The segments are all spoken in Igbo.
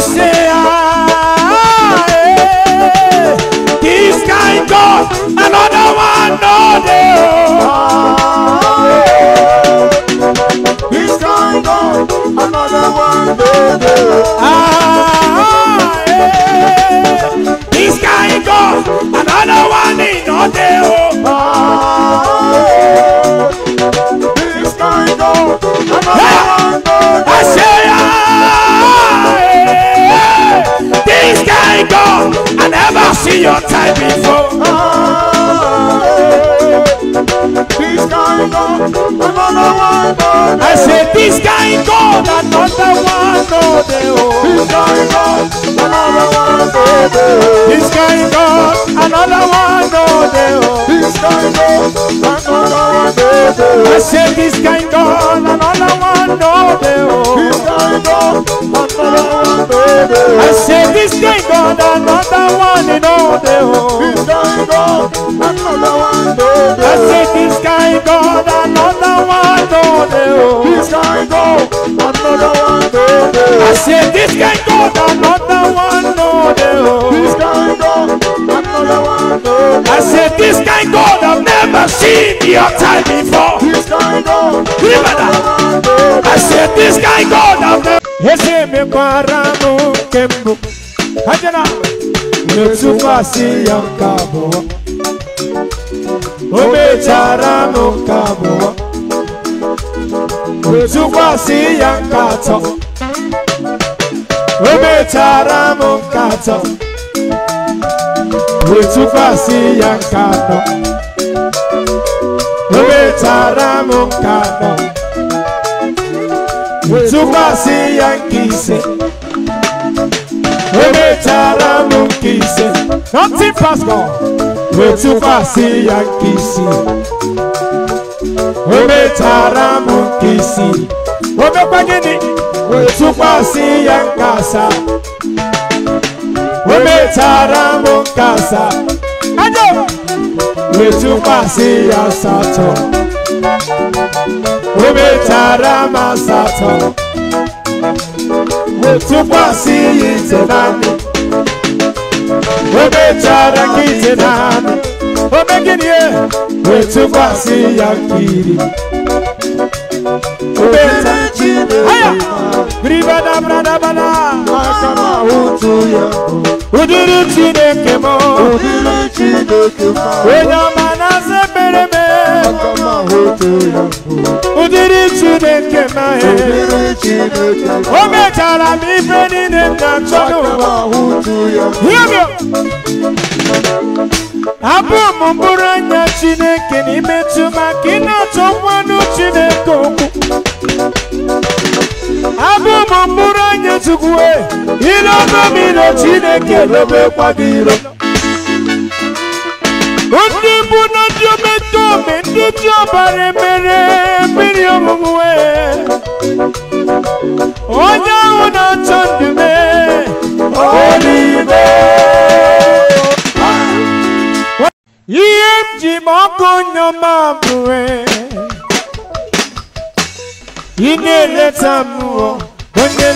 say, ah, This kind God, another one, no day. This kind God, another one, no Ah, this kind God, another one, no day. I said this guy God, another one oh dey This guy God, another one no This guy God, another one oh dey This guy God, another one no I said this guy God, another one oh dey This guy God, another one no I said oh. this guy God, another one no dey oh. This guy God, another one no I said oh. this guy God. This can go, another one go I said this can go, go down. This can go, one go down. I said this can go, I've never seen your time before. This can go, another one go I said this can go, I've never. si ya nkatọ atọ o mechara m nke atọ wee ya nkatọ atọ o mechara m nke atọ wee ya nke ise o mechara m nke nothing pastor wee tụkwasị ya nke isii o mechara m nke wamekwa gịnị wetụkwasị ya nkasa o metara m nkasa wetụkwasị ya asatọ o metara m asatọ wetụkwasị ya ite naanị o metara ya nkiri o dabra bradabada ụdịrị chineke m onye ọma na-asa ekpere m ụdịrị chineke m o mechara m ife niile m na-achọ abụ m mkpụrụ anya chineke na imetụ maka ị na-achọkwanụ chineke okwu chukwu ile ọnụmina chineke n'obekwa gị iro ndị bụ na ndị ometome ndị ji ọbara mere mmiri ọṅụṅụ onye ahụ na-achọ ndume olive ihe m ji ma ọkụ nyọma bụe ị na-eleta mmụọ onye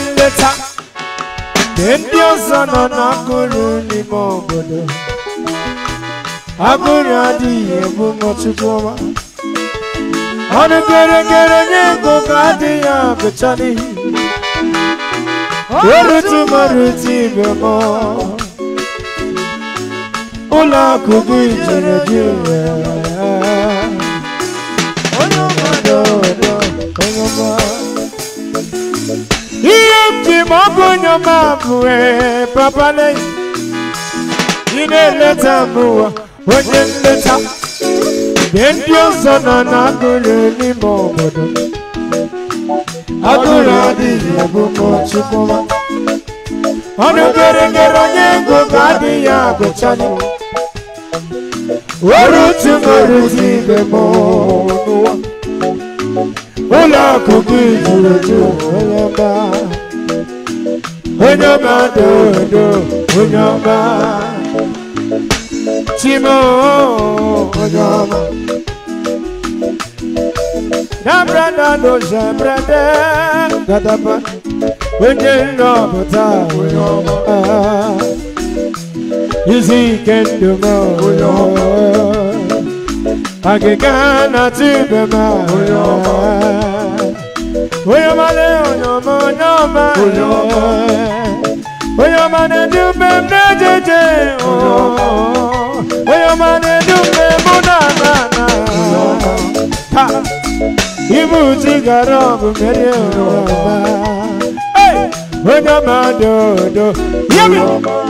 ndị ọzọ nọ n'akụrụ n'ime obodo agụrụ adịghị ebu ọma ọnụ nye ego ka adịghị abụcha n'ihi erutumarụti ibe m ụlọ akụ ijeri dị gị mwe papa nei Ine leta mwa Wenye leta Bendio sana na gule ni mbobodo Agula di yabu mochukuma Onu gerengero nyengo kadi ya gochani Waruti maruti bemonua Ula kukijuletu Ula ba. onye ọma dodo onye ọma chimo onye ọma nabra na doze brede gadaba onye nnọpụta onye ọma izu ike ndụ m onye ọma agịga na tibe m onye ọma Oyo male onyo mo nyoma Oyo Oyo mane dumbe mnejeje Oyo mane dumbe munana Ha Ibu tigaro bumere oyo ba Hey Onyo madodo Yemi Oyo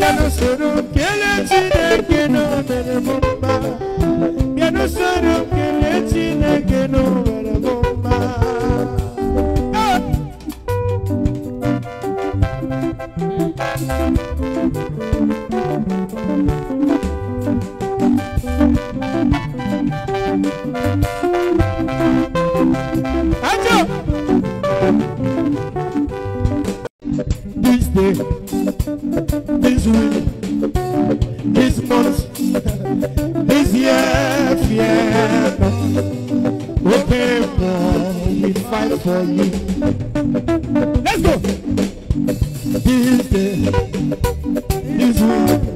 ya no será que fight for you. Let's go. This day, this week,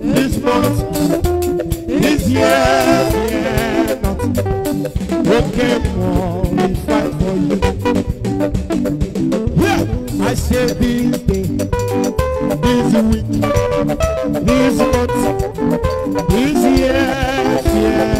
this month, this year, yeah, not. Okay, more, we fight for you. Yeah, I say this day, this week, this month, this year, yeah.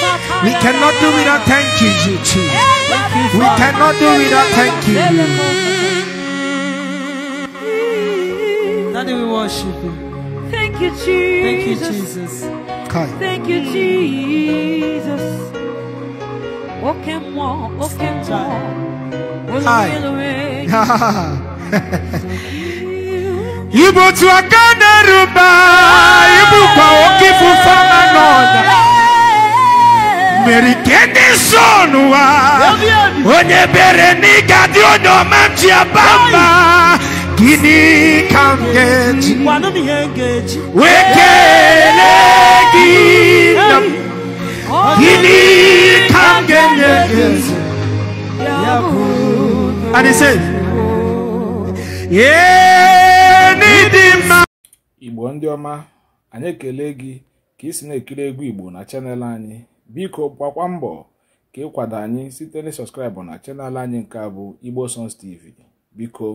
We cannot do without thank you, you We cannot do without thank you. Daddy, we worship you. Thank you, Jesus. Thank you, Jesus. Thank you, Jesus. Walk and walk, walk and walk. Hi. Ibo tu akana ruba, ibu pa okifu fama nona. mere ike onye bere n'ịga dị ga-adị onye ọma ji aba mba gịnị ka m ga-eji wee gị nna m gịnị ka m ga-enye gị and he said Igbo ndị ọma anyị ekele gị ka ị si na-ekiri egwu Igbo na chanel anyị biko gbakwa mbọ ka ịkwado anyị site na sọskraịbụ na chanel anyị nke a bụ igbo sons tv biko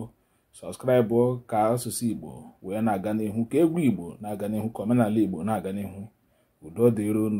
sọskraịbụ ka asụsụ igbo wee na-aga n'ihu ka egwu igbo na-aga n'ihu ka omenala igbo na-aga n'ihu udo dịron